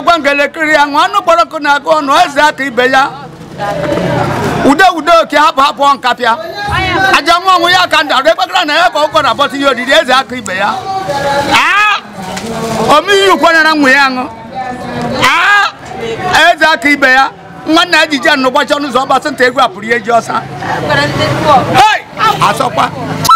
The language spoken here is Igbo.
mmadụ ọgwa ngelekiri ya nwa anụ kpọrọkụ na-agụ ọnụ eze aka ibe ya ude ude oke hapụ hapụ nkapịa aja nwa ọnwụ ya ka ndarụ ekpekara na ya ka ụkọ na-abọta ihe oriri eze aka ibe ya omeihe ukwenyera nwa ya aṅụ eze aka ibe ya nwanne ya jije nụ ụbọchị ọnụ ụzọ ọgbasị nta egwu apụrụ ihe ji ọsa asọkwa